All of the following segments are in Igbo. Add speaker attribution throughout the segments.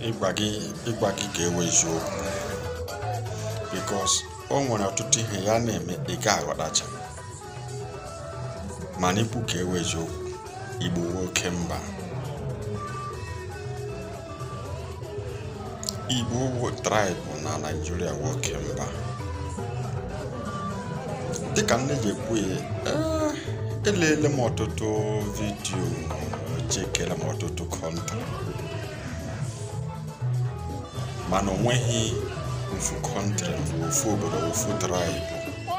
Speaker 1: ịgba gị ịgba gị ga-ewe eziokwu bikos o nwere ọtụtụ ihe ya na-eme ị aghọtacha mana ikwu ka ewe eziokwu igbo nwoke mba igbo traịbụ na naijiria nwoke mba dịka nne ji ekwu ya ah, eleele m ọtụtụ vidiyo chekiere m ọtụtụ kọnta mana onweghi ofu kọntri kọntrị ofu obodo ofu traịbụ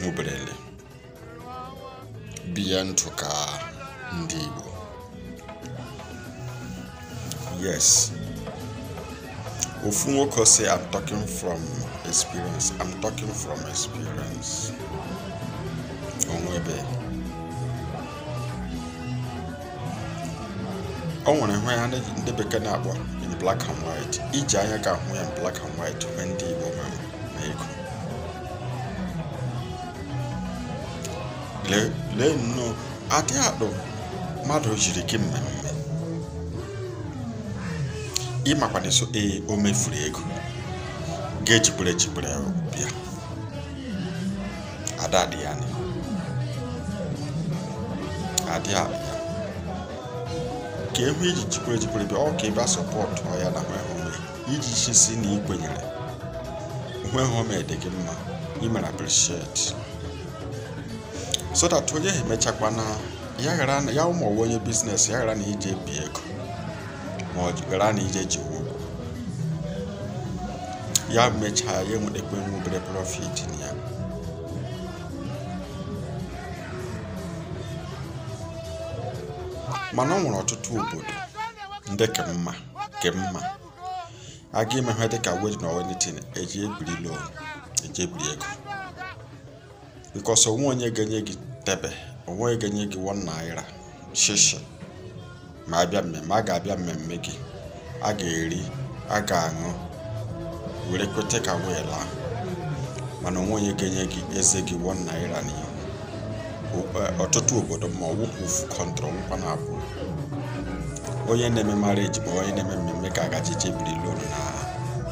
Speaker 1: nhuberele mhmm, biya ntụ ka ndị Igbo yes ofu nwoke si I'm talking from experience I'm talking from experience onwebe ọ nwere hụ ya ndị bekee na-akpọ in black and white iji anya ka ahụ ya in black and white ndị Igbo ma ego lee nnọọ adị akpụ mmadụ jiri gị mmemme ịmakwana so ee o mefuru ego ga-ejigbere ejigbere bịa adị adị ya adị akpụ ka egwu iji e jikwere jikwere bịa ọ ka ịba sọpọtụ ya na home iji si na ikwenyere home dị gị mma imere appreciate so that onye ha emechakwana ya ụmụ ọwa onye biznes ya ghara na ije bi ego ma ọ ghara na ije ji ụgwọ ya mechaa ya enwere ekwe obere profit na ya mana ọ nwere ọtụtụ obodo ndị ka mma ka mma aga ime ha dịka wedin na wedin eji ebiri lon eji ebiri ego bikos onwe onye ga-enye gị tebe onwe onye ga-enye gị wọn naira shishi ma abịa mmemme a ga-abịa mmemme gị a ga-eri a ga-aṅụ were kweta ka wee laa mana onwe onye ga-enye gị eze gị wọn naira n'ihu e, ọtụtụ obodo ma ọ wụkwụ ofu kọntrọ nkwa na abụ onye na-eme marriage bụ onye na-eme mmemme ka agajiche biri loan na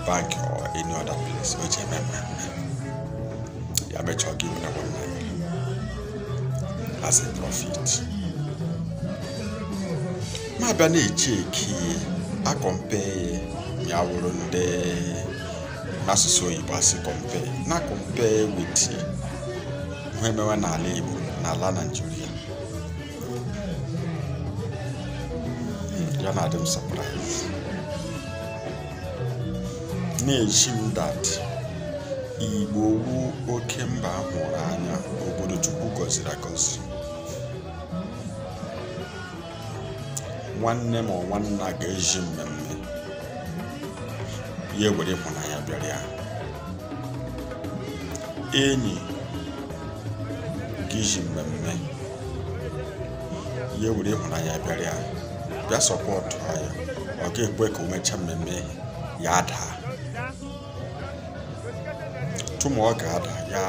Speaker 1: bank or any other place o ji eme mmemme ya mechọọ gị werekwa mmanya as a profit ma abịa na a akọmpe ya wụrụ ndị asụsụ oyibo asị kọmpe na kọmpe wit ihe mewe n'ala igbo n'ala naijiria yana adị surprise na-eji m dat igbo wu oke mba hụrụ anya obodo chukwu gọziri agọzi nwanne ma nwanna ga-eji mmemme ya ewere ịhụnanya bịara ya enyi ga-eji mmemme ya ewere ịhụnanya bịara ya bia support. sọpọtụ anyị ọ ga-ekwe ka o yada. Tomorrow, ya daa tụma ọ ga-ada ya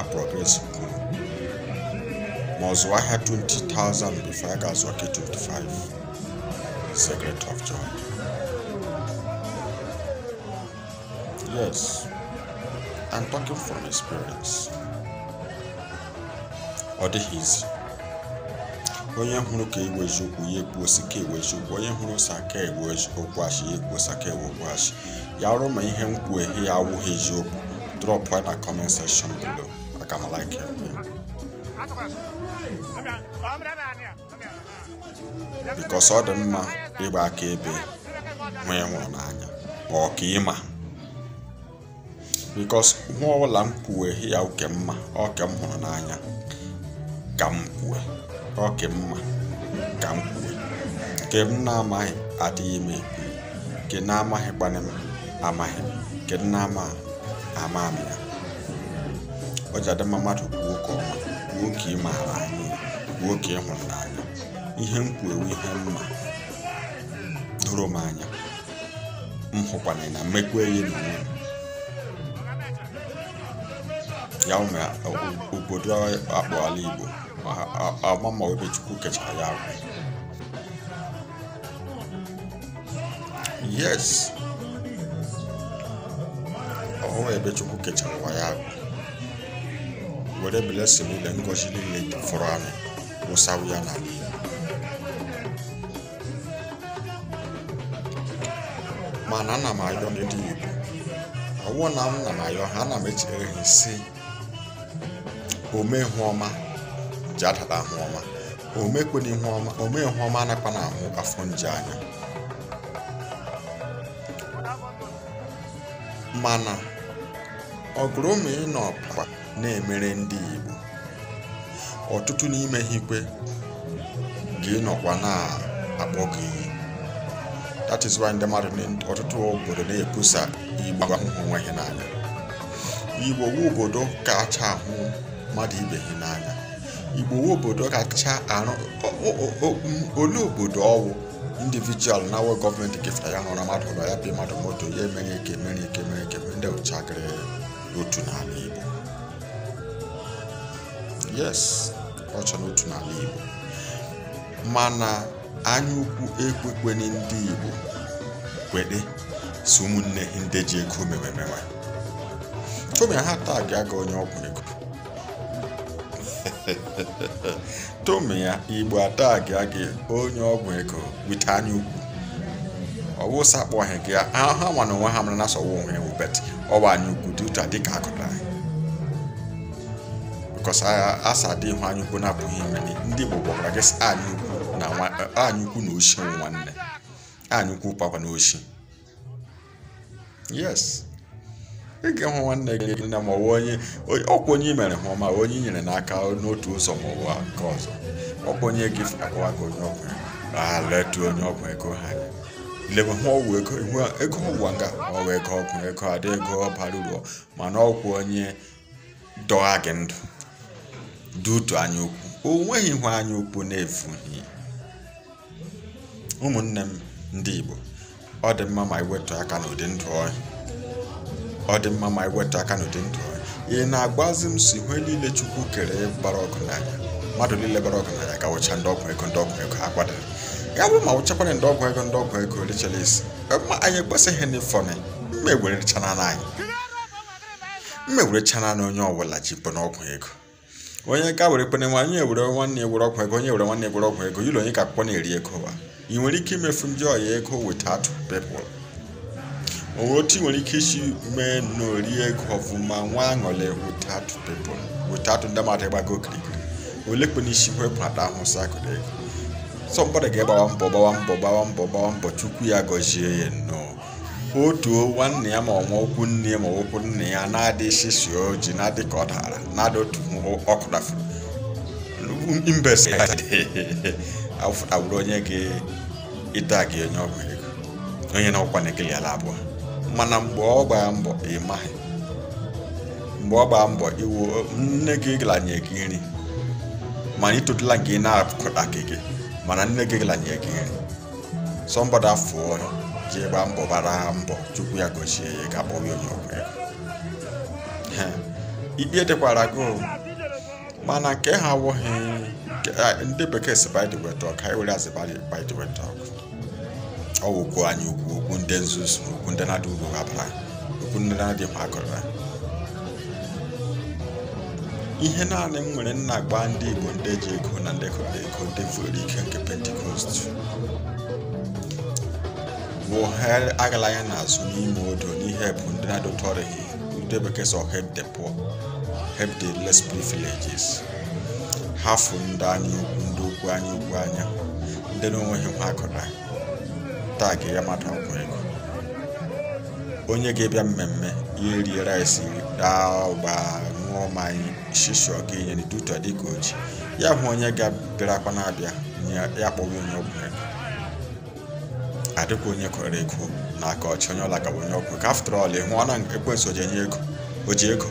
Speaker 1: aprogress nke ma ọ 20,000 before ya ga 25 secret of joy yes I'm talking from experience Or the izi onye hụrụ ka egwu eziokwu ya ekwu osi ka ewu eziokwu onye hụrụ osi aka okwu achị ya ekwu osi aka achị ya arụ ma ihe m ya awụghị eziokwu drop na comment section below aka ọ dị mma ịgba aka ebe nwa nwụrụ n'anya ma ọ ka m kwuwe ya mma ọ m hụrụ n'anya ka m ọ ka mma ka m kwuo nke m na-amaghị adịghị m ekwu nke na-amaghịkwana amaghị m amaghị nke m na-ama ama m ya ọ ji adị mma mmadụ kwuo ka ọma kwuo ka ị maara anyị kwuo ka ị hụrụ n'anya ihe m kwuo ihe mma doro m anya m hụkwana na mmekwa eyi na onwe m ya ume obodo akpọala Igbo a ma ọ bɛ jugu kɛ yes ahoɔ yɛ bɛtwe ko kɛkyɛ were a wɔde bɛlɛ sɛbi lɛ nkɔsi ne ya na ma m ayọ ayɔ ne di na awoɔ na m ayọ ha nam ekyirɛ ehinsi ome ho ọma. nje ahụ ọma omekwana ihu ọma ome ọma ahụ afọ nje mana ọgụrụ ma ị nọ na-emere ndị Igbo ọtụtụ n'ime ha ikwe ga nọkwa na-akpọ gị iyi ndị mmadụ ọtụtụ obodo na ekwusa igbo ahụhụ onwe ha n'anya wu obodo kacha ahụ mmadụ ibe n'anya igbowe obodo kacha arụ olee obodo ọwụ indivijual na awụ gọọmenti kefere ya hụrụ mmadụ ụlọ ya bi mmadụ moto ya mere ike mere ike ndị ụchagịrị n'otu n'ala igbo yes ọcha n'otu n'ala igbo mana anyaukwu ekwekwe ndị igbo kwede si ụmụnne ndị ji ego mewemewe tome ha taa ga-aga onye ọgwụ ego tomi ya igbo atagi gị onye ọgwụ ego wite anya ukwu ọwụsa kpọghị gị ha mana onwe ha mara na asọwa onwe ya wubet ọwa anya ukwu dị ka dịka anyị bikọs asa dị ihu anya ukwu na-abụghị ndị igbo gwara gị anya ukwu na anya na oshi nwanne anya ukwu papa na oshi yes ịga hụ nwanne gị nne ma ọwa onye ọkwa onye mere hụ ma onye i nyere n'aka n'otu ụzọ ma ọwa nke ọzọ ọkwa onye gị akwụwa gị onye ọgwụ a onye ọgwụ ego ha lebe hụ ọgwụ ego ihu ego ụwa nga ọwa ego ọgwụ ego adị ego bara uru mana ọgwụ onye dọgha gị ndụ dutu anya ukwu o nweghị ihu anya ukwu na-efughị ụmụnne m ndị Igbo ọ dị mma ma iwetu aka n'ụdị ndụ ọhịa ọ dị mma ma iweta aka n'ụdị ndụ ị na-agbazi m si ihe niile chukwu kere gbara n'anya mmadụ niile bara ọgụ n'anya wụcha ndị ọgwụ ego ndị ọgwụ ego agbada ya bụrụ ma wụchakwara ndị ọgwụ ego ndị ọgwụ ego richara isi ma anyị ekwesịghị na ịfọnị mma ewerechana anyị mma ewerechana na onye ọbụla jipụ n'ọgwụ ego onye ka were kpene nwa onye were nwanne were ọgwụ ego onye were nwanne were ọgwụ ego yiri onye ka na-eri ego wa ị nwere ike imefu ndị ọya ego without people Ọghọm tii nwere ike isi mee n'orie ọfụma nwa aṅụle without people without ndị mmadụ ịgbago okirikiri olekwe n'isi wepụ isi ahụ sakụde sọmbọdụ ga-agbawa mbọ gbawa mbọ gbawa mbọ gbawa mbọ chukwu ya gọzie ya nnọọ otuo nwanne ya ma ọnwa okwu nne ya ma okwu nne ya na-adịghị si oji na-adị ka ọ dara na-ada otu ọkụdafuru mbesawụrụ onye ga-ịta gị onye ọgwụ ego onye na ọkwa na ekele ala abụọ mana mgbe ọ gbaa mbọ ịmaghị mgbe ọ gbaa mbọ iwu nne gị ganye gị nri mana itotula nke ị na-apụkọta gị mana nne gị ganye gị nri sọmbọda fụọ ya ji gbaa mbọ gbara mbọ chukwu ya gochie ya ga akpọghị onye ọgwụ ya ikpe dịkwara gị mana nke ha wụghị ndị bekee si bidwet ọka ewere azị bidwet ọkụ ọ bụ okwu anyị okwu okwu ndị nzuzu okwu ndị na-adị uru gabara okwu ndị na-adị mma gụrụra ihe naanị m nwere nna agba ndị igbo ndị ji ego na ndị kọrọ ego ndị fụrụ ike nke pentikọst bụ ha agala ya n'azụ n'ime odo n'ihe bụ ndị na-adụtọrịghị ndị bekee sọ help the poor help the less privileges ha fụ ndị anyị ukwu ndị ukwu anyị ukwu anya ndị na-enweghị nwa akụra taa ka ya mata ọkụ ego onye ga-abịa mmemme ya erie rice raa ụgba ṅụọ mmanya shisho ga-enye duto dịka oji ya hụ onye ga-abịara akwa na-abịa ya kpọwa onye ọgwụ ego adịkwa onye kwere ego na aka ọchị onye ọla ka onye ọgwụ ka after ịhụ oji ego